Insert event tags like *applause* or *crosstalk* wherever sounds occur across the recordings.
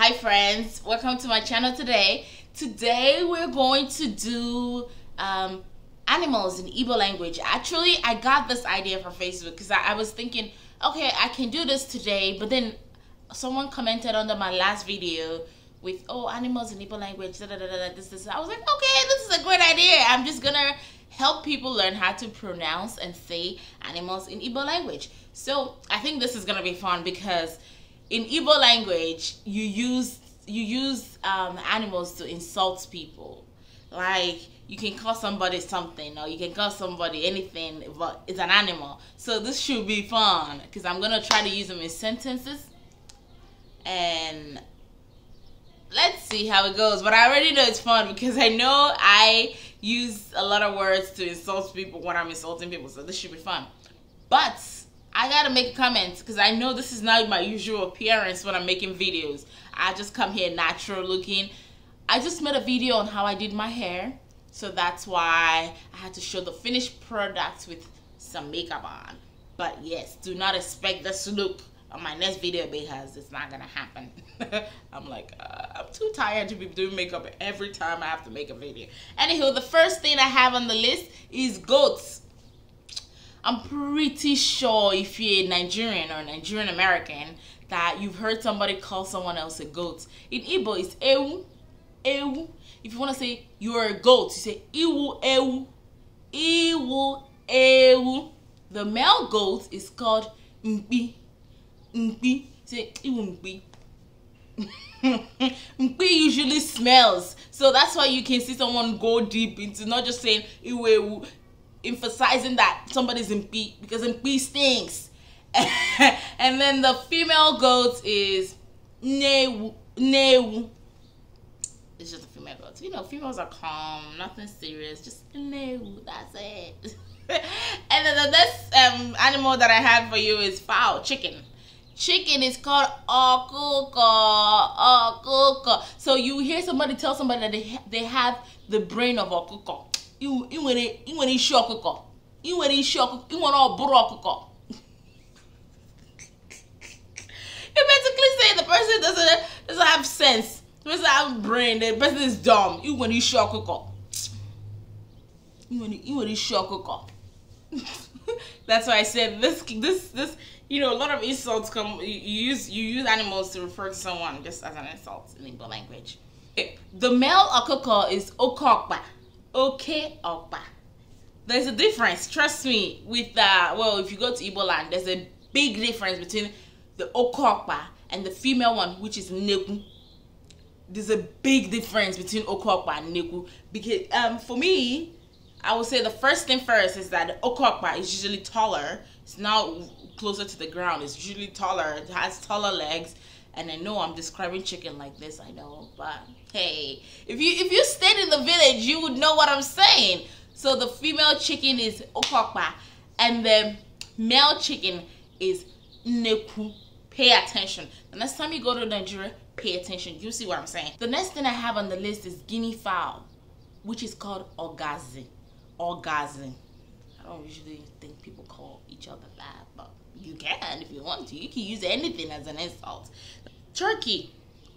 hi friends welcome to my channel today today we're going to do um, animals in Igbo language actually I got this idea from Facebook because I, I, was thinking okay I can do this today but then someone commented under my last video with oh animals in Igbo language da, da, da, da, this this I was like okay this is a great idea I'm just gonna help people learn how to pronounce and say animals in Igbo language so I think this is gonna be fun because in Igbo language, you use you use um, animals to insult people. Like you can call somebody something, or you can call somebody anything, but it's an animal. So this should be fun because I'm gonna try to use them in sentences, and let's see how it goes. But I already know it's fun because I know I use a lot of words to insult people when I'm insulting people, so this should be fun. But I gotta make comments because I know this is not my usual appearance when I'm making videos. I just come here natural looking. I just made a video on how I did my hair. So that's why I had to show the finished product with some makeup on. But yes, do not expect this look on my next video because it's not gonna happen. *laughs* I'm like, uh, I'm too tired to be doing makeup every time I have to make a video. Anywho, the first thing I have on the list is goats. I'm pretty sure if you're a Nigerian or Nigerian American that you've heard somebody call someone else a goat. In Igbo, it's ewu, ewu. If you want to say you're a goat, you say iwu ewu, iwu ewu. The male goat is called mpi, mpi. Say iwu mpi. *laughs* mpi usually smells, so that's why you can see someone go deep into not just saying iwu ewu emphasizing that somebody's in B because in B stinks. *laughs* and then the female goat is neu Newu. It's just a female goat. You know, females are calm, nothing serious, just neu. That's it. *laughs* and then the next um, animal that I have for you is fowl, chicken. Chicken is called okuko, okuko. So you hear somebody tell somebody that they, they have the brain of okuko you nwere isi ọkụkọ ị nwere isi ọkụkọ ị nwere ọbụrụ ọkụkọ you basically say the person doesn't doesn't have sense the person have brain the person is dumb ị nwere isi ọkụkọ want to isi ọkụkọ *laughs* that's why I said this this this you know a lot of insults come you use you use animals to refer to someone just as an insult in English language. The male okoko is okokpa okay okpa. There's a difference, trust me, with, that, uh, well, if you go to Igbo land, there's a big difference between the okokpa and the female one, which is neku. There's a big difference between okokpa and neku. Because um, for me, I would say the first thing first is that the is usually taller. It's now closer to the ground. It's usually taller. It has taller legs. And I know I'm describing chicken like this, I know, but hey, if you if you stayed in the village, you would know what I'm saying. So the female chicken is okokpa, and the male chicken is neku. Pay attention. The next time you go to Nigeria, pay attention. You see what I'm saying? The next thing I have on the list is guinea fowl, which is called orgazi. Orgazi. I don't usually think people call each other that, but you can if you want to. You can use anything as an insult turkey.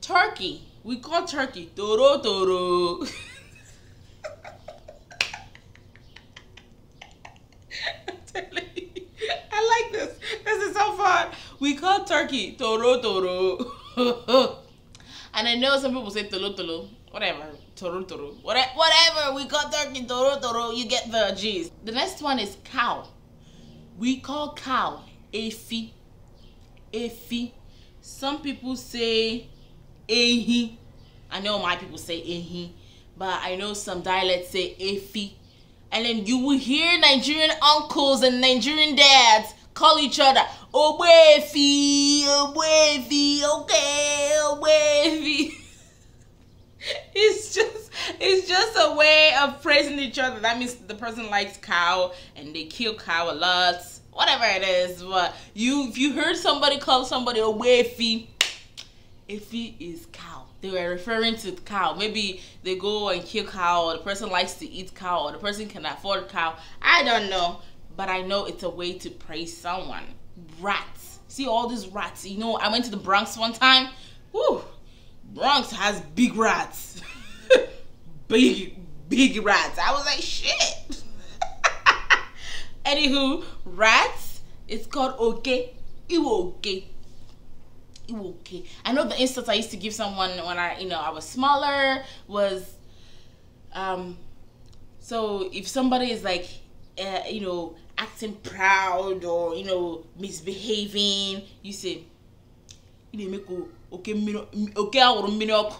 Turkey. We call turkey toro toro. I like this. This is so fun. We call turkey toro toro. and I know some people say tolo tolo. Whatever. Toro toro. Whatever, whatever. We call turkey toro toro. You get the gist. The next one is cow. We call cow efi. Efi some people say ehi i know my people say ehi but i know some dialects say efi and then you will hear nigerian uncles and nigerian dads call each other obefi obefi okay obefi *laughs* it's just it's just a way of praising each other that means the person likes cow and they kill cow a lot whatever it is. But you, if you heard somebody call somebody a if he is cow. They were referring to cow. Maybe they go and kill cow, or the person likes to eat cow, or the person can afford cow. I don't know, but I know it's a way to praise someone. Rats. See all these rats. You know, I went to the Bronx one time. Woo! Bronx has big rats. *laughs* big, big rats. I was like, shit. Anywho, rats, it's called okay. Iwo okay. Iwo okay. I know the insults I used to give someone when I, you know, I was smaller was, um, so if somebody is like, uh, you know, acting proud or you know misbehaving, you say, "Okay, okay, okay, okay, okay,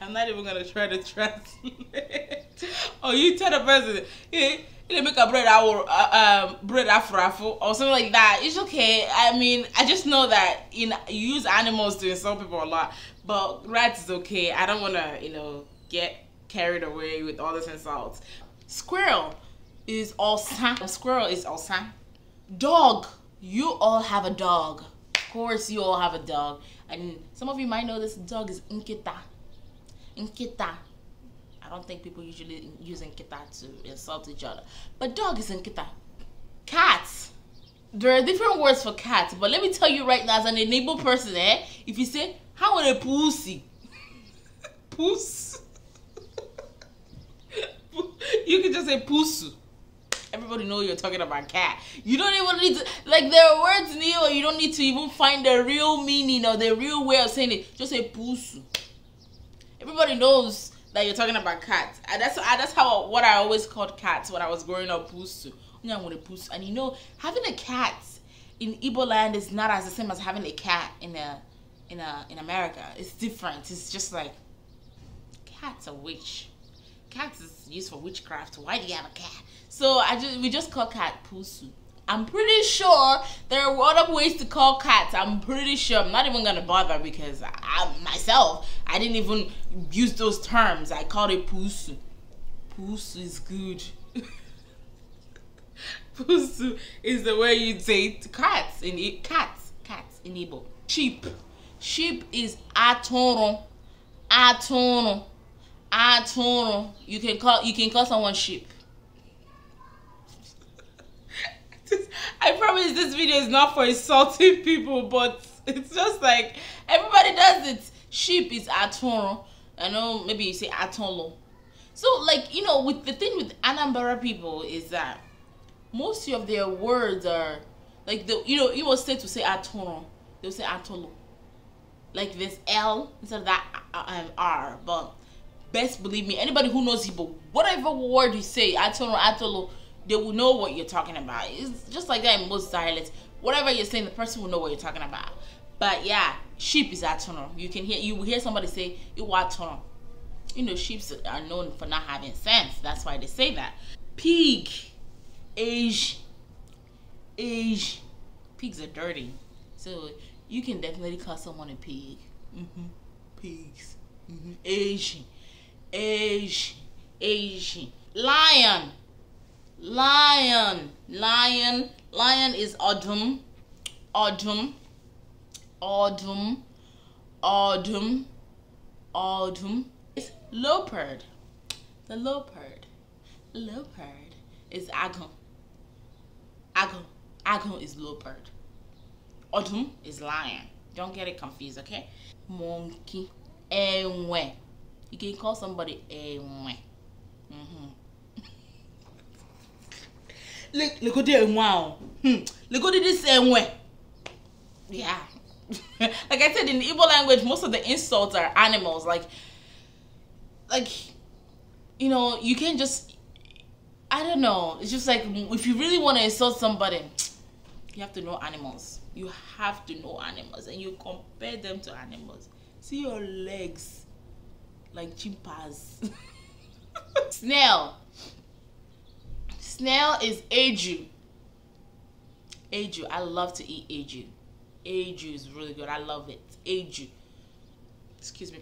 I'm not even gonna try to translate. *laughs* oh, you tell the president, hey, you make a bread hour, uh, um, bread afro or something like that. It's okay. I mean, I just know that in you use animals to insult people a lot, but rats is okay. I don't wanna, you know, get carried away with all these insults. Squirrel is awesome. Squirrel is awesome. Dog. You all have a dog. Of course, you all have a dog, and some of you might know this dog is nkita. Nkita. I don't think people usually use Nkita to insult each other. But dog is Nkita. Cats. There are different words for cats, but let me tell you right now, as an enabled person, eh, if you say, how would a pussy? *laughs* Puss. *laughs* you can just say pussy everybody know you're talking about cat. You don't even need to like there are words in here you don't need to even find the real meaning or the real way of saying it. Just say pussy everybody knows that you're talking about cats. And that's I, that's how what I always called cats when I was growing up. Pusu, and you know, having a cat in Igbo land is not as the same as having a cat in a in a in America. It's different. It's just like cat's are witch. Cats is used for witchcraft. Why do you have a cat? So I just we just call cat Pusu. I'm pretty sure there are a lot of ways to call cats. I'm pretty sure. I'm not even gonna bother because I myself I didn't even use those terms. I called it puss. Puss is good. *laughs* Puss is the way you say cats in it. Cats, cats in Igbo. Sheep. Sheep is atoro. Atoro. Atoro. You can call you can call someone sheep. *laughs* I promise this video is not for insulting people, but it's just like everybody does it. Sheep is aton. I know maybe you say atolo. So like you know, with the thing with Anambra people is that most of their words are like the you know you will say to say aton, they'll say atolo. Like this L instead of that uh, uh, um, R, but best believe me, anybody who knows Igbo, whatever word you say, or atolo they will know what you're talking about. It's just like that in most dialects. Whatever you're saying, the person will know what you're talking about. But yeah, sheep is atonal. You can hear you will hear somebody say iwatonal. You know, sheep are known for not having sense. That's why they say that. Pig, age, age. Pigs are dirty, so you can definitely call someone a pig. Mm-hmm. Pigs. Mm-hmm. Asian, Asian, Asian. Lion. Lion. Lion. Lion is odum. Odum. Odum. Odum. Odum. It's leopard. The leopard. Leopard is agon. Agon. Agon is leopard. Odum is lion. Don't get it confused, okay? Monkey. Ewe. You can call somebody ewe. Mm-hmm. Look, at legodi enwe Look at this way. yeah *laughs* like i said in the Igbo language most of the insults are animals like like you know you can't just i don't know it's just like if you really want to insult somebody you have to know animals you have to know animals and you compare them to animals see your legs like chimpanzees *laughs* snail Snail is Aju. Aju. I love to eat Aju. Aju is really good. I love it. Aju. Excuse me.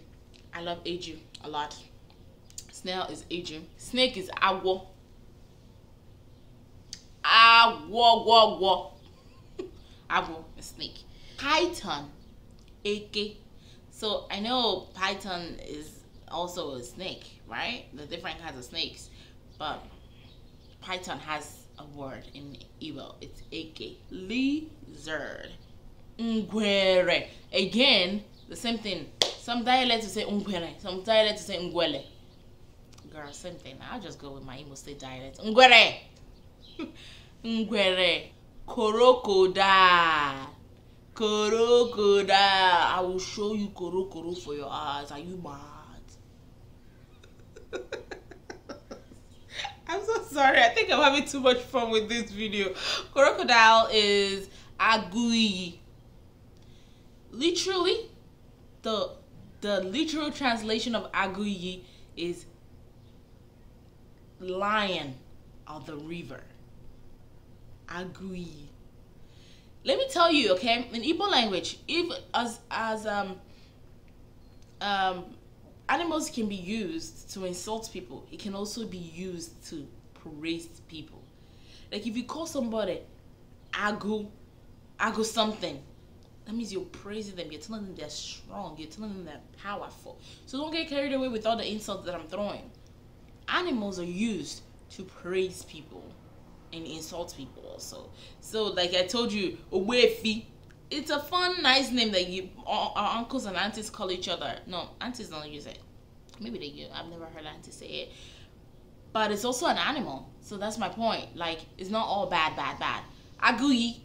I love Aju a lot. Snail is Aju. Snake is Awo. Awo, wo, wo. Awo, a snake. Python, AK. So I know python is also a snake, right? The different kinds of snakes. But Python has a word in Igbo. It's eke. Lizard. Ngwere. Again, the same thing. Some dialects say ngwere. Some dialects say ngwele. Girl, same thing. I'll just go with my Imo State dialect. Ngwere. *laughs* ngwere. Korokoda. Korokoda. I will show you korokoro for your eyes. Are you mad? *laughs* sorry. I think I'm having too much fun with this video. Crocodile is agui. Literally, the the literal translation of agui is lion of the river. Agui. Let me tell you, okay, in Igbo language, if as as um um animals can be used to insult people. It can also be used to Praise people. Like if you call somebody agu, agu something, that means you're praising them. You're telling them they're strong. You're telling them they're powerful. So don't get carried away with all the insults that I'm throwing. Animals are used to praise people and insult people also. So like I told you, Owefi. It's a fun, nice name that you our, our uncles and aunties call each other. No, aunties don't use it. Maybe they do. I've never heard aunties say it but it's also an animal. So that's my point. Like, it's not all bad, bad, bad. Agui,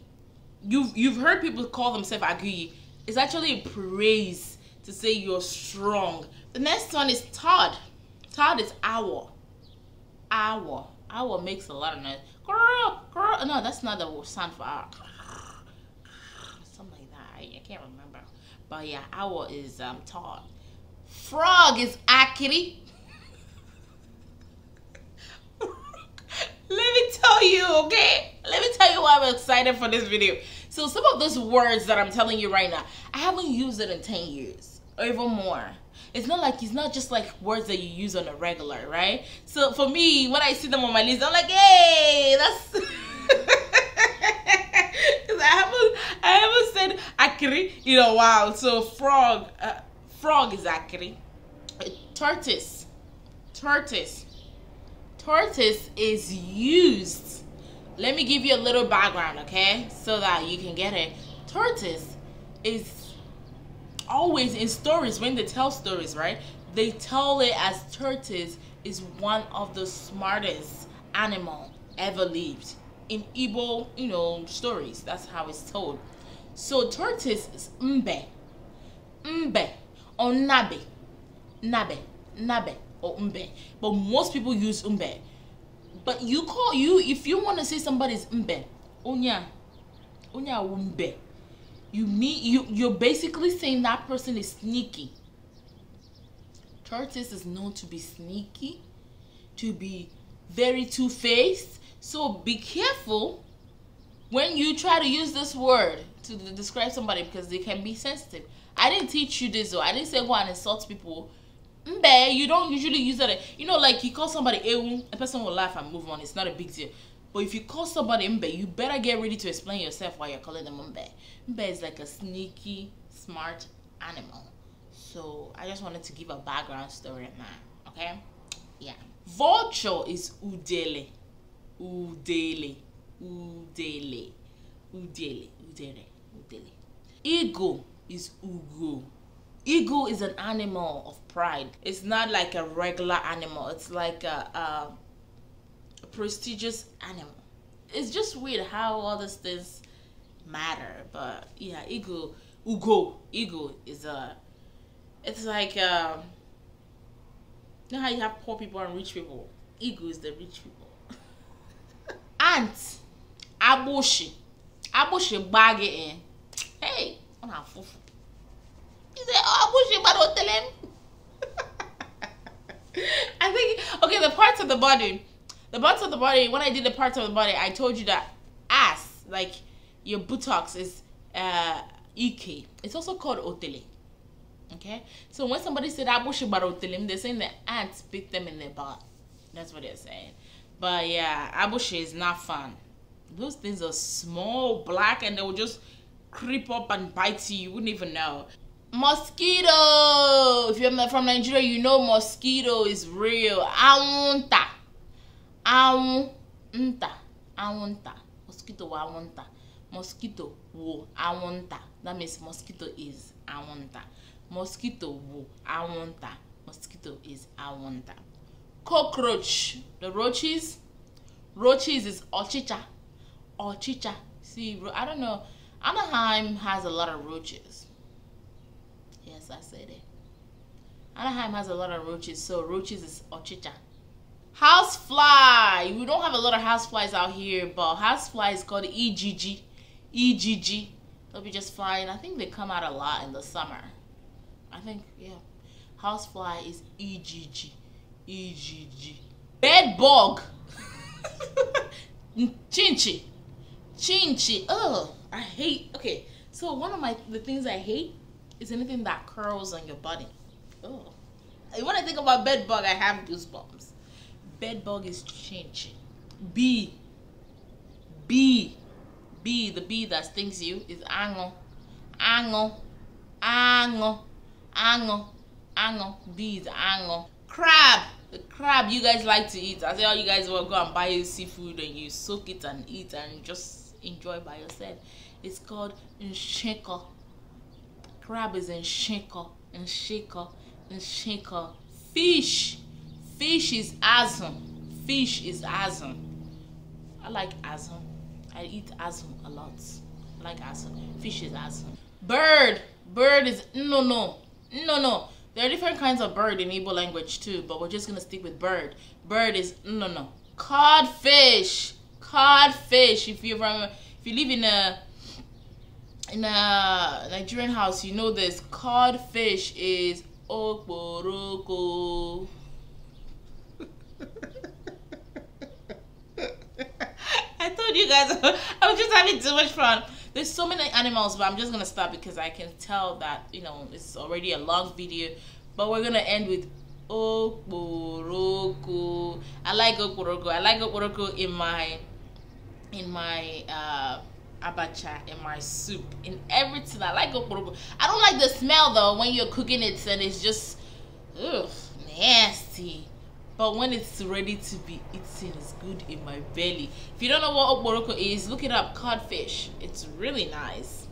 you've you've heard people call themselves agui. It's actually a praise to say you're strong. The next one is Todd. Todd is owl. Owl. Owl makes a lot of noise. Girl, girl. No, that's not the sound for owl. Something like that. I, I can't remember. But yeah, owl is um, Todd. Frog is Akiri. tell you, okay? Let me tell you why I'm excited for this video. So some of those words that I'm telling you right now, I haven't used it in 10 years or even more. It's not like, it's not just like words that you use on a regular, right? So for me, when I see them on my list, I'm like, hey, that's... *laughs* I haven't, I haven't said akiri in a while. So frog, uh, frog is akiri. Tortoise, tortoise tortoise is used. Let me give you a little background, okay? So that you can get it. Tortoise is always in stories when they tell stories, right? They tell it as tortoise is one of the smartest animal ever lived in Igbo, you know, stories. That's how it's told. So tortoise is mbe, mbe, onabe, nabe, nabe, nabe or umbe. But most people use umbe. But you call you if you want to say somebody's umbe, unya, unya umbe. You mean you you're basically saying that person is sneaky. Tortoise is known to be sneaky, to be very two-faced. So be careful when you try to use this word to describe somebody because they can be sensitive. I didn't teach you this though. I didn't say go and insult people Mbe, you don't usually use that. You know, like you call somebody Ewu, um, a person will laugh and move on. It's not a big deal. But if you call somebody Mbe, you better get ready to explain yourself why you're calling them Mbe. Mbe is like a sneaky, smart animal. So I just wanted to give a background story on that. Okay? Yeah. Vulture is Udele. Udele. Udele. Udele. Udele. Udele. Ego is Ugo. Ego is an animal of pride. It's not like a regular animal. It's like a, a prestigious animal. It's just weird how all these things matter. But yeah, ego, ugo, ego is a. It's like um, you know how you have poor people and rich people. Ego is the rich people. I bushy, I bushy bagging. Hey, I'm a fufu. He said, "Oh, I wish you tell *laughs* him." I think okay, the parts of the body, the parts of the body. When I did the parts of the body, I told you that ass, like your buttocks, is uh, ek. It's also called otele. Okay, so when somebody said I wish you they're saying the ants bit them in their butt. That's what they're saying. But yeah, abushi is not fun. Those things are small, black, and they will just creep up and bite you. You wouldn't even know. mosquito if you're from nigeria you know mosquito is real awunta awunta awunta mosquito wa awunta mosquito wo awunta that means mosquito is awunta mosquito wo awunta mosquito is awunta cockroach the roaches roaches is ochicha ochicha see i don't know anaheim has a lot of roaches I said it. Anaheim has a lot of roaches, so roaches is ochicha. fly. We don't have a lot of house flies out here, but house fly is called EGG. EGG. They'll be just flying. I think they come out a lot in the summer. I think, yeah. House fly is EGG. EGG. Bed bug! *laughs* Chinchi. Chinchi. Oh, I hate. Okay, so one of my the things I hate is anything that curls on your body. Oh. When I think about bed bug, I have goosebumps. Bed bug is changing. B. B. B, the bee that stings you is ango. Ango. Ango. Ango. Ango. B is ango. Crab. The crab you guys like to eat. I say all you guys will go and buy your seafood and you soak it and eat and just enjoy by yourself. It's called nsheko crab is in shinko, in shinko, in shinko. Fish. Fish is azum. Fish is azum. I like azum. I eat azum a lot. I like azum. Fish is azum. Bird. Bird is no no. No no. There are different kinds of bird in Igbo language too, but we're just gonna stick with bird. Bird is no no. Codfish. Codfish. If you remember, if you live in a in a uh, Nigerian house, you know this cod fish is okporoko. *laughs* I told you guys, *laughs* I was just having too much fun. There's so many animals, but I'm just gonna stop because I can tell that you know it's already a long video. But we're gonna end with okporoko. I like okporoko. I like okporoko in my in my. Uh, abacha in my soup, in everything. I like okporoko. I don't like the smell though when you're cooking it and it's just ugh, nasty. But when it's ready to be eaten, it's good in my belly. If you don't know what okporoko is, look it up. Codfish. It's really nice.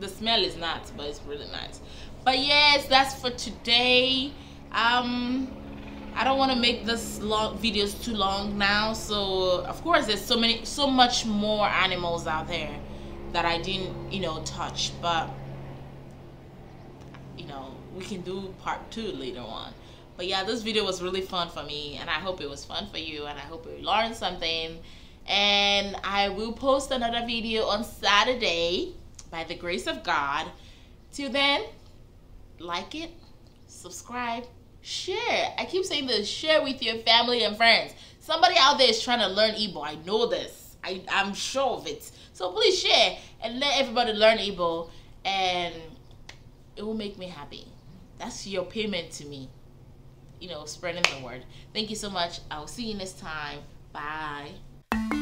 The smell is not, but it's really nice. But yes, that's for today. Um, I don't want to make this long videos too long now so of course there's so many so much more animals out there that I didn't you know touch but you know we can do part two later on but yeah this video was really fun for me and I hope it was fun for you and I hope you learned something and I will post another video on Saturday by the grace of God till then like it subscribe share. I keep saying this share with your family and friends. Somebody out there is trying to learn Igbo. I know this, I, I'm sure of it. So please share and let everybody learn Igbo, and it will make me happy. That's your payment to me, you know, spreading the word. Thank you so much. I'll see you next time. Bye.